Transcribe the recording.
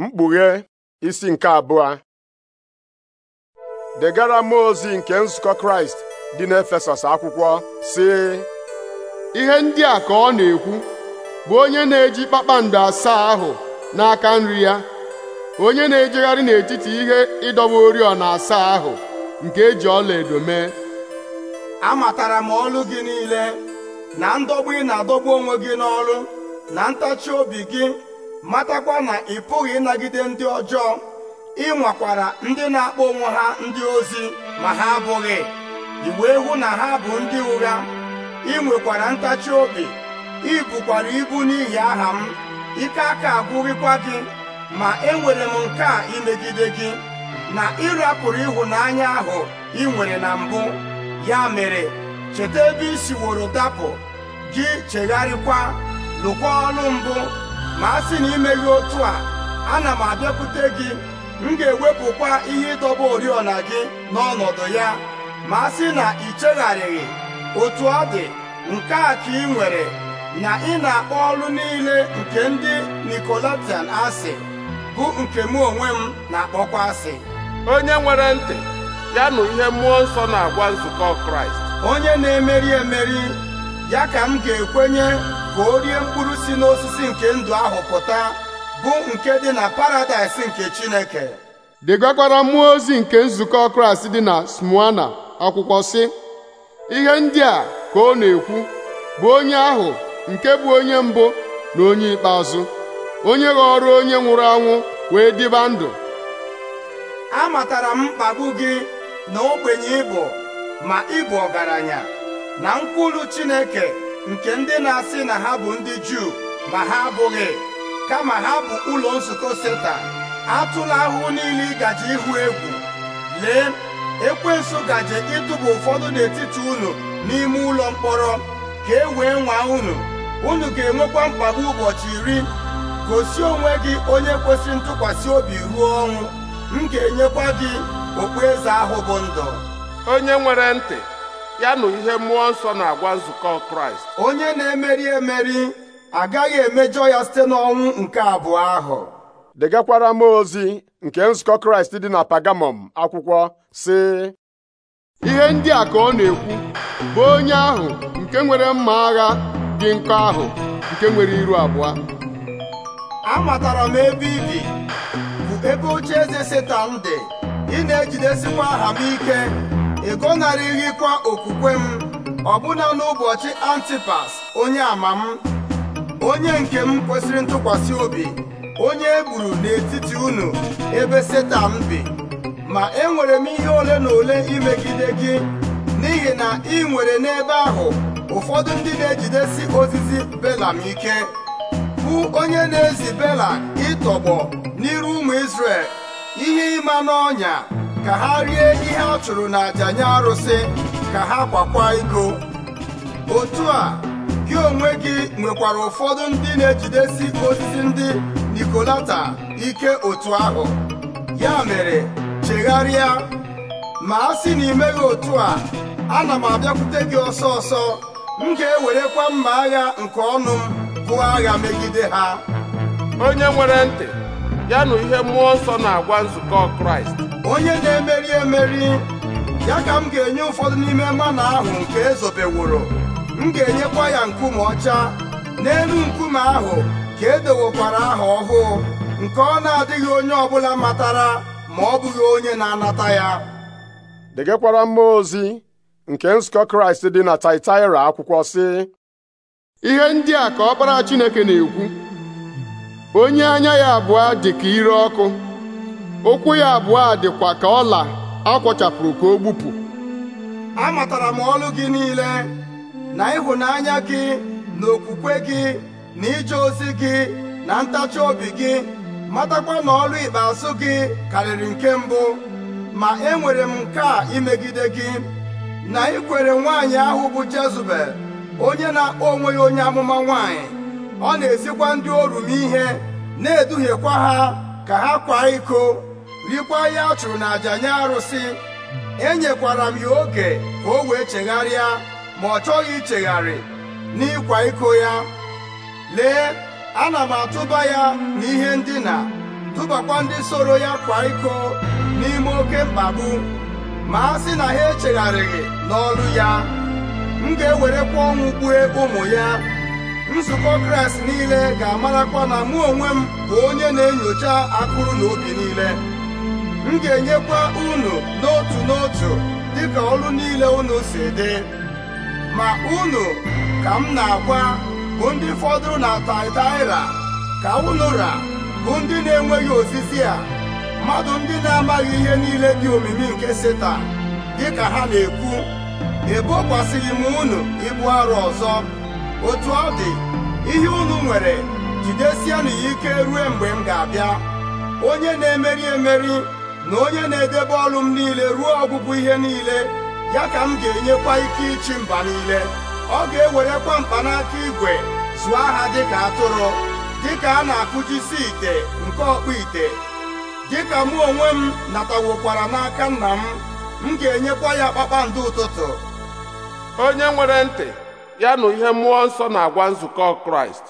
mkpughe isi nke abụọ degara m ozi nke nzukọ kraịst dị n'efesọs akwụkwọ sị ihe ndị a ka ọ na-ekwu bụ onye na-eji kpakpando asaa ahụ n'aka nri ya onye na-ejegharị n'etiti ihe ịdọba oriọna asaa ahụ nke eji edo mee amatara m ọlụ gị niile na ndọgbu ị na-adọgbu onwe gị n'ọlụ na ntachi obi gị matakwa na ị pụghị ịnagide ndị ọjọọ ị nwakwara ndị na-akpọ onwe ha ndị ozi ma ha abụghị ị wee hụ na ha bụ ndị ụgha ị nwekwara ntachi obi ị ibu n'ihi aha m ike aka agwụghịkwa gị ma enwere m nke a imegide gị na ịrapụrụ ịhụnanya ahụ ị nwere na mbụ ya mere cheta ebe i siworo dapụ gị chegharịkwa lụkwa ọrụ mbụ ma a sị na imeghị otu a ana m abịakwute gị m ga-ewepụkwa ihe ịdọba oriọna gị n'ọnọdụ ya ma a sị na ị chegharịghị otu ọ dị nke a ka ị nwere na ị na-akpọ ọrụ niile nke ndị nikolatian asị bụ nke mụ onwe m na-akpọkwa asị onye nwere ntị ya nụ ihe mmụọ nsọ na-agwa nzukọ Kraịst onye na-emeri emeri ya ka m ga-ekwenye ka o rie mkpụrụ si n'osisi nke ndụ ahụ pụta bụ nke dị na paradaịs nke Chineke degakwara mmụọ ozi nke nzukọ Kraịst dị na Smyrna akwụkwọ sị ihe ndị a ka ọ na-ekwu bụ onye ahụ nke bụ onye mbụ na onye ikpeazụ onye ghọrọ onye nwụrụ anwụ wee dịba ndụ amatara m mkpagbu gị na ogbenye ịbụ ma ịbụ ọgaranya na nkwulu Chineke nke ndị na-asị na ha bụ ndị Juu ma ha abụghị kama ha bụ ụlọ nzukọ Seta, atụla ahụhụ niile ịgaji ịhụ egwu lee ekwensu gaje ịtụba ụfọdụ n'etiti unu n'ime ụlọ mkpọrọ ka e wee nwaa unu unu ga-enwekwa mkpagbu ụbọchị iri gosi onwe gị onye kwesịrị ntụkwasị obi ruo ọnwụ m ga-enyekwa gị okpueze ahụ bụ ndụ onye nwere ntị ya na ihe mmụọ nsọ na-agwa nzukọ kraịst onye na-emeri emeri agaghị emejọ ya site n'ọnwụ nke abụọ ahụ degakwara m ozi nke nzukọ kraịst dị na pagamọm akwụkwọ sị ihe ndị a ka ọ na-ekwu bụ onye ahụ nke nwere mma agha dị nkọ ahụ nke nwere iru abụọ amatara ebe ibi bụ ebe oche eze setan dị ị ejidesikwa aha m ike ịgọnarịghịkwa okwukwe m ọbụna n'ụbọchị antipas onye ama m onye nke m kwesịrị ntụkwasị obi onye e gburu n'etiti unu ebe Seta m bi ma enwere m ihe ole na ole imegide gị n'ihi na ị nwere n'ebe ahụ ụfọdụ ndị na-ejidesi ozizi belam ike bụ onye na-ezi bela ịtọgbọ n'iru ụmụ Izrel ihe ịma n'ọnya ka ha rie ihe a chụrụ n'aja nye arụsị ka ha kwakwa iko otu a gị onwe gị nwekwara ụfọdụ ndị na-ejidesi osisi ndị nikolata ike otu ahụ ya mere chegharịa ma a sị na imeghị otu a ana m abịakwute gị ọsọ ọsọ m ga-ewerekwa mma agha nke ọnụ m bụ agha megide ha onye nwere ntị ya na ihe mmụọ nsọ na-agwa nzukọ kraịst onye na-emeri emeri ya ka m ga-enye ụfọdụ n'ime mmanụ ahụ nke ezobeworo m ga-enyekwa ya nkume ọcha n'elu nkume ahụ ka edowokwara aha ọhụụ nke ọ na-adịghị onye ọbụla matara ma ọ bụghị onye na-anata ya degekwara mmụọ ozi nke nzukọ kraịst dị na taitaira akwụkwọ sị ihe ndị a ka ọkpara chineke na-ekwu onye anya ya abụọ dị ka ire ọkụ ụkwụ ya abụọ dịkwa ka ọla akwọchapụrụ ka o gbupụ amatara m ọlụ gị niile na ịhụnanya gị na okwukwe gị na ije ozi gị na ntachi obi gị matakwa na ọlụ ikpeazụ gị karịrị nke mbụ ma enwere m nke a imegide gị na ikwere nwaanyị ahụ bụ Jezebel onye na-akpọ onwe ya onye amụma nwaanyị ọ na-ezikwa ndị m ihe na-eduhiekwa ha ka ha kwa iko rikwa ya a chụrụ aja nye arụsị enyekwara m ya oge ka o wee chegharịa ma ọ chọghị ichegharị n'ịkwa iko ya lee ana m atụba ya n'ihe ndina tụbakwa ndị soro ya kwa iko n'ime oke mkpagbu ma a sị na ha echegharịghị n'ọlụ ya m ga-ewerekwa ọnwụ gbue ụmụ ya nzukọ kraịst niile ga-amarakwa na mụ onwe m bụ onye na-enyocha akụrụ na obi niile m ga-enyekwa unu n'otu n'otu dịka ọrụ niile unu si dị ma unu ka m na-agwa bụ ndị fọdụrụ na Taịtaịra ka unu ra bụ ndị na-enweghị osisi a mmadụ ndị na-amaghị ihe niile dị omimi nke dị dịka ha na-ekwu ebokwasịghị m unu ịbụ arụ ọzọ otu ọ dị ihe unu nwere jidesianụ ya ike rue mgbe m ga-abịa onye na-emeri emeri na onye na-edebe ọrụ m niile ruo ọgwụgwụ ihe niile ya ka m ga-enyekwa ike ịchị mba niile ọ ga-ewerekwa mkpanaka igwe zụọ aha dịka atụrụ dịka a na-akụjisi ite nke ọkpụ ite dịka mụ onwe m natawokwara n'aka nna m m ga-enyekwa ya kpakpando ụtụtụ onye nwere ntị ya na ihe mmụọ nsọ na-agwa nzukọ kraịst